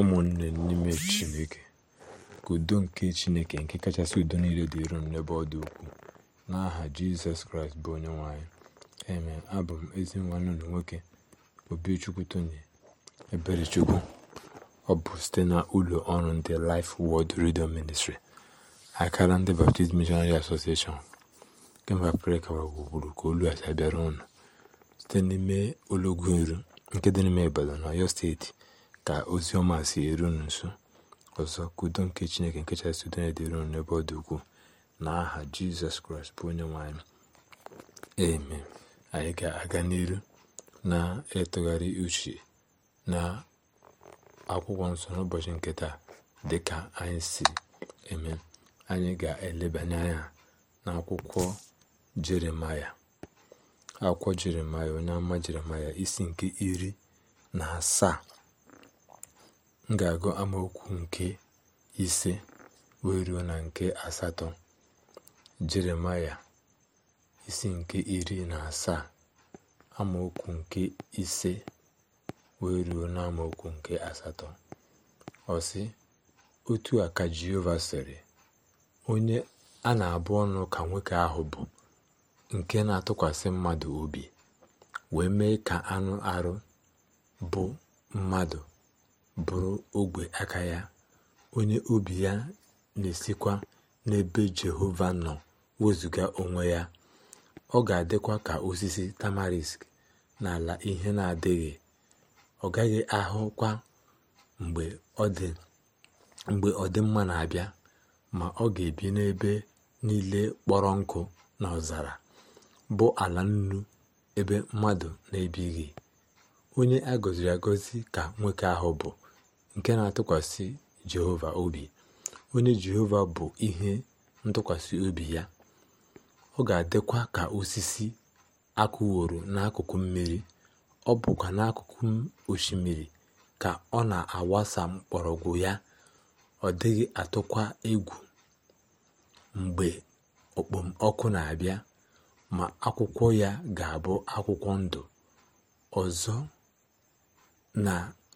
ụmụnne n'ime Chineke, ka udo nke Chineke nke kachasị udo niile dịrị unu n'ebe ọ dị ukwuu, n'aha Jizọs Kraịst bụ Onyenwe anyị. Amen. Abụ m ezi nwanne nwoke Obichukwu Tony Eberechukwu. Ọ bụ site na ụlọ ọrụ ndị Life Word Radio Ministry akara ndị Baptist Missionary Association kemgbe Afrịka gburugburu ka olu a bịara unu site n'ime olọgwu iru nke dị n'ime Ibadan, Ọyọ Steeti ka ozi ọma si eru nso ọzọ ka nke chineke nke kachasị udo ya dịrị n'ebe ọ dị ukwuu na aha jizọs kraịst bụ onye nwanyị anyị anyị ga-aga n'iru na-etụgharị uche na akwụkwọ nsọ n'ụbọchị nkịta dịka dị ka anyị si eme anyị ga-elebanye anya na akwụkwọ jeremaya akwụkwọ jeremaya onye ama jeremaya isi nke iri na asaa m ga-agụ amaokwu nke ise wee na nke asatọ jeremaya isi nke iri na asaa amaokwu nke ise wee ruo na amaokwu nke asatọ ọsị otu a ka jehova sịrị onye a na-abụ ọnụ ka nwoke ahụ bụ nke na-atụkwasị mmadụ obi wee mee ka anụ arụ bụ mmadụ bụrụ ogwe aka ya onye obi ya na-esikwa n'ebe jehova nọ wezụga onwe ya ọ ga-adịkwa ka osisi tamarisk n'ala ihe na-adịghị ọ gaghị ahụkwa mgbe ọ dị mgbe ọdịmma na-abịa ma ọ ga-ebi n'ebe niile kpọrọ nkụ na ọzara bụ ala nnu ebe mmadụ na-ebighị onye ka nwoke ahụ bụ nke na-atụkwasị Jehova obi onye Jehova bụ ihe ntụkwasị obi ya ọ ga-adịkwa ka osisi akụworo n'akụkụ mmiri ọ bụkwa n'akụkụ osimiri ka ọ na-awasa mgbọrọgwụ ya ọ dịghị atụkwa egwu mgbe okpomọkụ na-abịa ma akwụkwọ ya ga-abụ akwụkwọ ndụ ọzọ na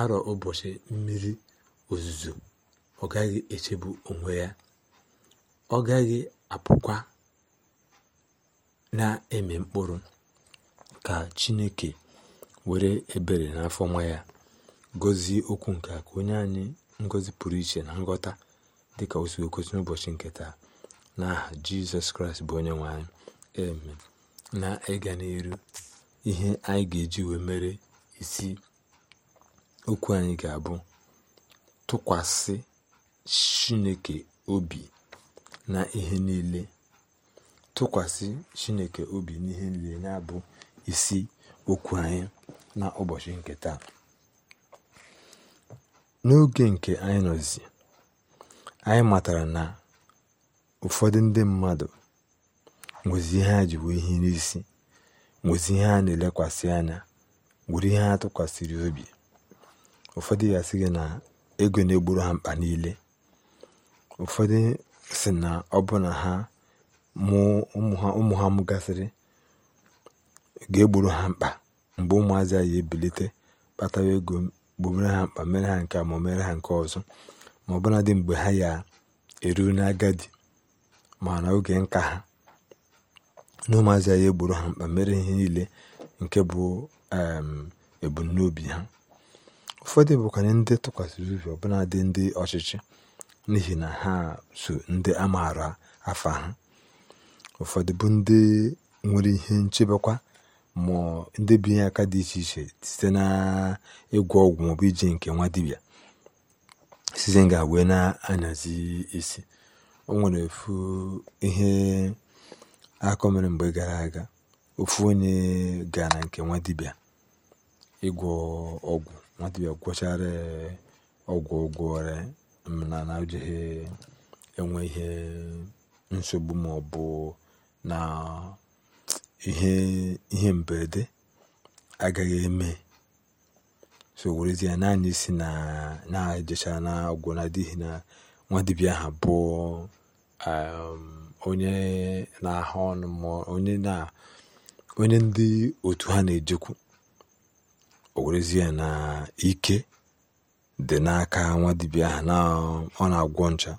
arọ ụbọchị mmiri ozuzo ọ gaghị echebu onwe ya ọ gaghị apụkwa na-eme mkpụrụ ka chineke were ebere n'afọ nwa ya gọzie okwu nke ka onye anyị ngọzi pụrụ iche na nghọta dịka ka si n'ụbọchị nke taa n'aha jizọs kraịst bụ onye nwe eme na ịga n'iru ihe anyị ga-eji wee mere isi okwu anyị ga-abụ tụkwasị chineke obi na ihe niile tụkwasị chineke obi n'ihe niile na-abụ isi okwu anyị na ụbọchị nke taa n'oge nke anyị nọzi anyị matara na ụfọdụ ndị mmadụ nwezi ihe ha ji wee ihe n'isi nwezi ihe ha na-elekwasị anya nwere ihe ha tụkwasịrị obi ụfọdụ ya sị gị na ego na-egburu ha mkpa niile ụfọdụ si na ọ bụ na ha ụmụ ha mụgasịrị ga-egburu ha mkpa mgbe ụmụazị ya ebilite kpatawa ego gbobere ha mkpa mere ha nke ma mere ha nke ọzọ ma ọ bụladị mgbe ha ya eruru n'agadi mana oge nka ha na ụmụazị ya egburu ha mkpa mere ihe niile nke bụ ebumnobi ha Ụfọdụ bụkwanụ ndị tụkwasịrị obi ọbụnadị ndị ọchịchị n'ihi na ha so ndị a maara afa ha ụfọdụ bụ ndị nwere ihe nchebekwa ma ndị binye aka dị iche iche site na ịgwọ ọgwụ maọbụ iji nke nwa dibịa sizi nga wee na-anyazi isi o nwere ihe akọ mere mgbe gara aga ofu onye gara nke nwa dibịa ịgwọ ọgwụ nwata ya gwọchara ọgwụ ụgwọ ọrịa mana na ojighi enwe ihe nsogbu ma ọ bụ na ihe mberede agaghị eme so werezie naanị si na na-ejecha na ọgwụ na adịghị na nwa bụ um, onye na-ahụ ọnụ ma onye ndị otu ha na-ejekwu owerezie na ike dị n'aka nwa dibịa ahụ na ọ na-agwọ ncha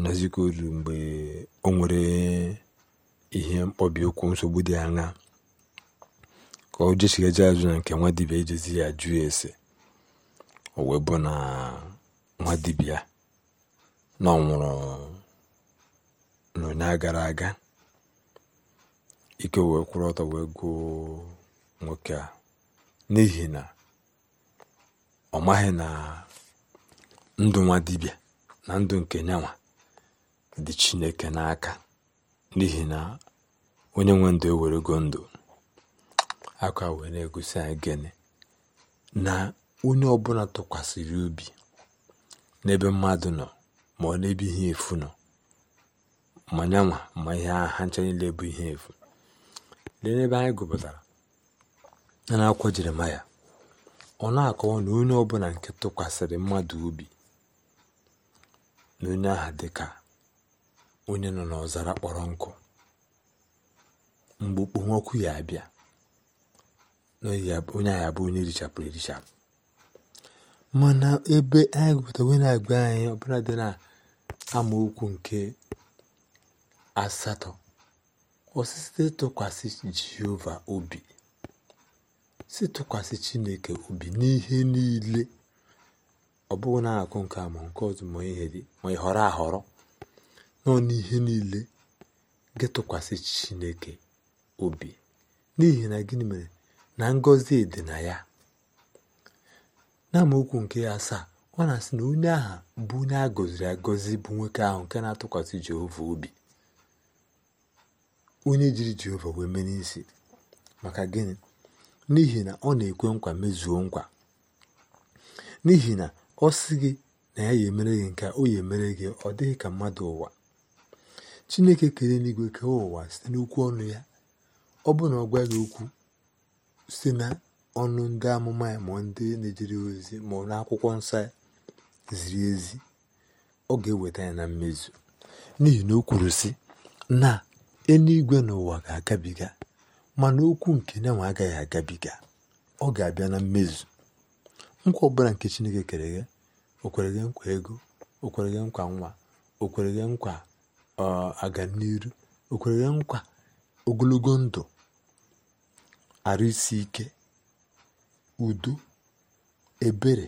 n'ezikọ olu mgbe o nwere ihe mkpọbi ụkwụ nsogbu dị aṅa ka o jesigaje azụ na nke nwa dibia ijezi ya jụ ese o wee bụ na nwa dibia na ọ nwụrụ gara aga ike wee kwụrụ ọtọ wee gụọ nwoke a n'ihi na ọ maghị na ndụ nwa dibịa na ndụ nke nyanwa dị chineke n'aka n'ihi na onye nwe ndụ ewerego ndụ aka wee na-egosi anyị gịnị na onye ọbụla tụkwasịrị ubi n'ebe mmadụ nọ ma ọ n'ebe ihe efu nọ ma nyanwa ma ihe ha ncha niile bụ ihe efu lee n'ebe anyị gụpụtara na n'akwụkwọ jeremaya ọ na-akọwa na onye ọbụla nke tụkwasịrị mmadụ obi na onye aha dị ka onye nọ n'ọzara kpọrọ nkụ mgbe okpomọkụ ya abịa onye ahụ abụ onye richapụrụ erichapụ mana ebe anyị gụpụtara na-agba anyị ọbụla dị na amaokwu nke asatọ osisi tụkwasị jehova obi si tụkwasị chineke obi n'ihe niile ọ bụghị na-akụ nke a ma nke ọzọ ma ị họrọ ahọrọ nọ n'ihe niile gị tụkwasị chineke obi n'ihi na gịnị mere na ngọzi dị na ya n'amaokwu nke ya asaa ọ na-asị na onye aha bụ onye a gọziri agọzi bụ nwoke ahụ nke na-atụkwasị Jehova obi onye jiri Jehova wee mee n'isi maka gịnị n'ihi na ọ na-ekwe nkwa mezuo nkwa n'ihi na ọ sị gị na ya ya emere gị nke o ya emere gị ọ dịghị ka mmadụ ụwa chineke kere n'igwe kee ụwa site n'okwu ọnụ ya ọ bụ na ọ gwaghị okwu site na ọnụ ndị amụma ya ma ndị na-ejere ozi ma n'akwụkwọ nsọ ya ziri ezi ọ ga-eweta ya na mmezu n'ihi na o kwuru sị na eluigwe n'ụwa ga-agabiga mana okwu nke nyanwe agaghị agabiga ọ ga-abịa na mmezu nkwa ọbụla nke chineke kere ghe nkwa ego o nkwa nwa o nkwa aga o kwere nkwa ogologo ndụ arụ isi ike udo ebere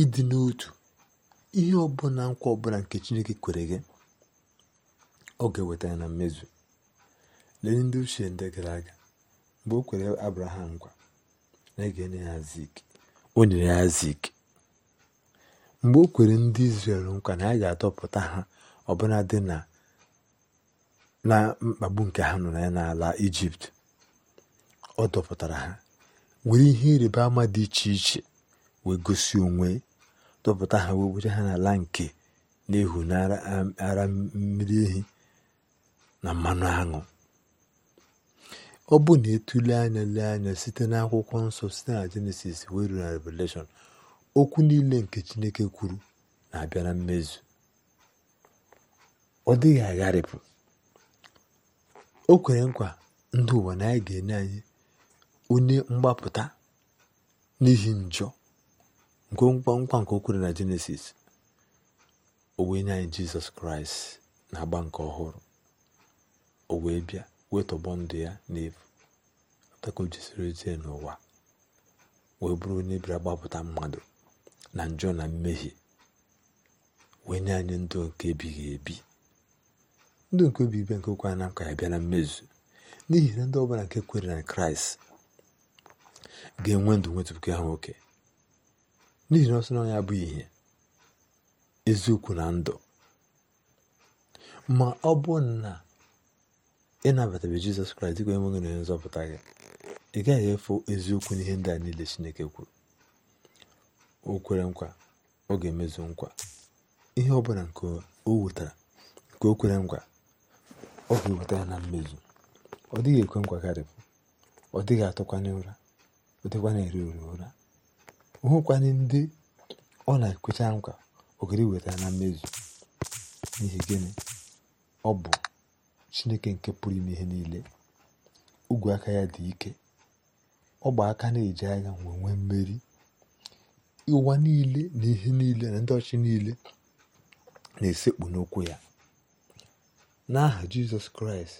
ịdị n'otu ihe ọbụla nkwa ọbụla nke chineke kwere gị ọ ga-eweta ya na mmezu lee ndị ochie ndị gara aga mgbe o kwere abraham nkwa na ege ga o nyere ya zik mgbe o kwere ndị izrel nkwa na a ga adọpụta ha ọbụla dị na mkpagbu nke ha nọ ya n'ala ijipt ọ dọpụtara ha were ihe ịrịba ama dị iche iche wee gosi onwe dọpụta ha wee were ha n'ala nke na-ehu mmiri ehi na mmanụ aṅụ ọ bụ na etule anya lee anya site n'akwụkwọ nsọ site na jenesis wee ruru na revelation okwu niile nke chineke kwuru na-abịa na mmezu ọ dịghị agharịpụ o kwere nkwa ndị ụwa na anyị ga-enye anyị onye mgbapụta n'ihi njọ nke nkwa nke o kwere na jenesis o wee nye anyị jizọs kraịst na agba nke ọhụrụ o wee bịa wee tọgbọ ndụ ya n'efu ka o jisiri ojie n'ụwa wee bụrụ onye bịara gbapụta mmadụ na njọ na mmehie wee nye anyị ndụ nke ebighị ebi ndụ nke obi ibe nke okwe anam ka ya bịa na mmezu n'ihi na ndị ọbụla nke kwere na kraịst ga-enwe ndụ nwetụpụke ha nwoke n'ihi na ọsọ na ya bụ ihe eziokwu na ndụ ma ọ bụ na ịnabatabe jizọs kraịst dịka enweghị na onye nzọpụta gị ị gaghị efu eziokwu n'ihe ndị a niile chineke kwuru o kwere nkwa ọ ga-emezu nkwa ihe ọ bụla nke o wetara nke o kwere nkwa ọ ga-eweta ya na mmezu ọ dịghị ekwe nkwa karịpụ ọ dịghị atụkwanye ụra ọ dịkwana eri ori ụra hụkwanye ndị ọ na-ekwecha nkwa ogiri weta ya na mmezu n'ihi gịnị ọ bụ chineke nke pụrụ ime ihe niile ogwe aka ya dị ike ọgba aka na-eji agha nwe mmeri ụwa niile na ihe niile na ndị ọchị niile na-esekpu n'okwu ya n'aha jizọs kraịst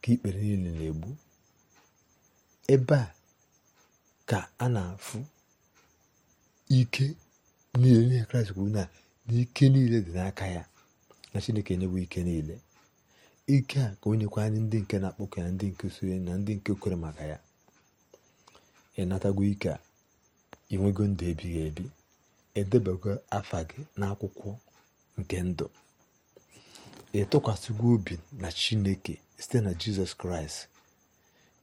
ka ikpere niile na-egbu ebe a ka a na-afụ ike niile n'ihe kraịst kwuru na n'ike niile dị n'aka ya na chineke enyebụ ike niile ike a ka o nyekwa anyị ndị nke na-akpọkọ ya ndị nke soro na ndị nke kwere maka ya ịnatago ike a inwego ndụ ebighị ebi edebego afa gị n'akwụkwọ nke ndụ ịtụkwasịgo obi na chineke site na jizọs kraịst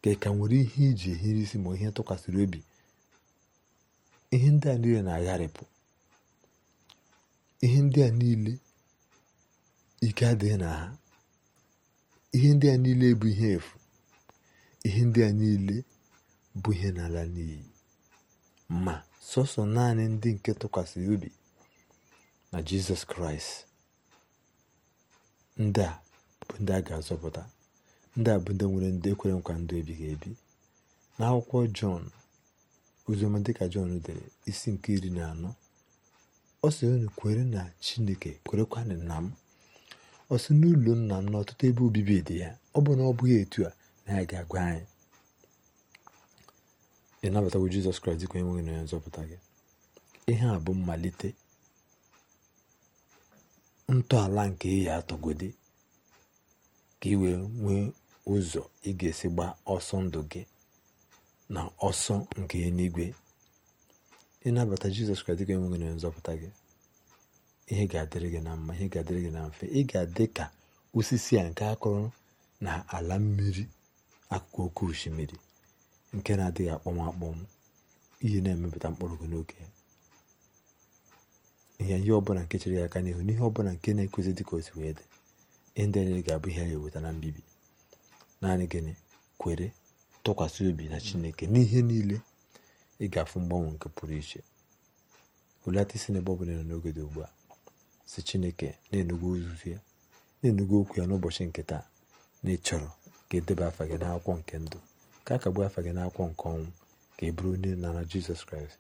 ka ka nwere ihe iji ehiri isi ma ihe tụkwasịrị obi ihe ndị a niile na-agharịpụ ihe ndị a niile ike adịghị na ha ihe ndị a niile bụ ihe efu ihe ndị a niile bụ ihe n'ala n'iyi ma sọsọ naanị ndị nke tụkwasịrị obi na jizọs kraịst ndị a bụ ndị a ga-azọpụta ndị a bụ ndị nwere ndị ekwere nkwa ndụ ebighị ebi n'akwụkwọ jọn oziọma dịka jọn dere isi nke iri na anọ ọ sị unu kwere na chineke kwerekwa na m ọ sị n'ụlọ nna m na ọtụtụ ebe obibi dị ya ọ bụ na ọ bụghị etu a na ya ga-agwa anyị ịnabatawo jizọs kraịst dịka onye nwe gị na onye nzọpụta gị ihe a bụ mmalite ntọala nke ị atọgodi ka ị wee nwee ụzọ ị ga-esi gbaa ọsọ ndụ gị na ọsọ nke eluigwe ịnabata jizọs kraịst dịka onye nwe gị na onye nzọpụta gị ihe ga-adịrị gị na mma ihe ga-adịrị gị na mfe ị ga-adị ka osisi a nke akụrụ na ala mmiri akụkụ oke osimiri nke na-adịghị akpọm akpọm ihe na-emepụta mkpụrụ gị n'oge ihe ihe ọbụla nke chere ya aka n'ihu n'ihe ọbụla nke na-ekwesị dị ka o wee dị ndị anyị ga-abụ ihe ya eweta na mbibi naanị gịnị kwere tụkwasị obi na chineke n'ihe niile ị ga-afụ mgbanwe nke pụrụ iche hulata isi n'ebe ọ bụla nọ n'oge dị ugbu a si chineke na-enugo ozuzu ya na-enugo okwu ya n'ụbọchị nke taa na ịchọrọ chọrọ ka edebe afa gị n'akwụkwọ nke ndụ ka a afa gị n'akwụkwọ nke ọnwụ ka ị bụrụ onye nara jizọs kraịst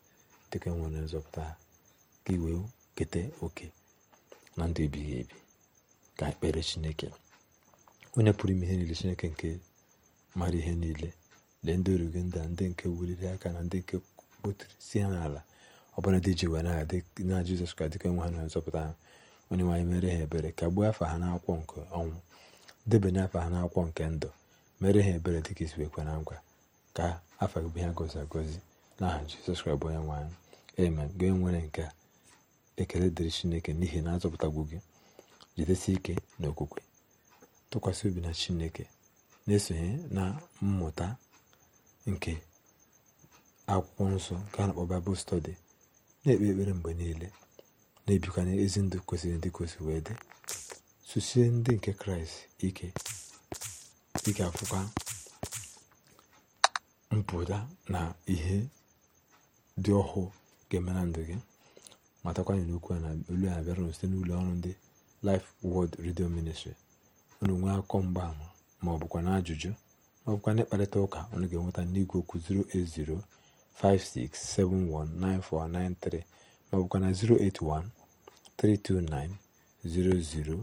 dịka e nwere nzọpụta ka iwe keta oke na ndụ ebighị ebi ka ekpere chineke onye pụrụ ime ihe niile chineke nke mara ihe niile lee ndị oru gị nda ndị nke wuliri aka na ndị nke kpotiri si ha n'ala ọbụla dị ji were aha na jizọs kraịst dịka e nwe ha na nzọpụta ha onye nwaanyị mere ha ebere kagbuo afa ha n'akwụkwọ nke ọnwụ debanye afa ha n'akwụkwọ nke ndụ mere ha ebere dịka isi wee kwe na nkwa ka afọ gị bụ ihe gozi agozi aha jizọs kraịst bụ onye nwe anyị amen gị nwere nke ekele dịrị chineke n'ihi na azọpụtagbu gị jidesi ike na okwukwe tụkwasị obi na chineke na-esonye na mmụta nke akwụkwọ nsọ nke a na-akpọ baịbụl stọdi na-ekpe ekpere mgbe niile na-ebikwa n'ezi ndụ kwesịrị ndị kwesịrị wee dị susie ndị nke kraịst ike ị ga-akwụkwa mpụta na ihe dị ọhụụ ga-eme na ndụ gị matakwa na okwu a na olu a na-abịara site n'ụlọ ọrụ ndị Life Word Radio Ministry unu nwee akọ mgbaama ma ọ bụkwa na ajụjụ ma ọ bụkwa na ịkparịta ụka unu ga-enweta n'igwe okwu 08056719493 ma na 081 329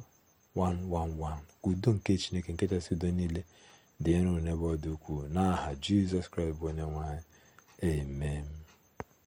111 udo nke chineke nke chasị udo niile dị nro n'ebe ọ dị ukwuu n'aha jizọs kraịst bụ onye nwanyị anyị amen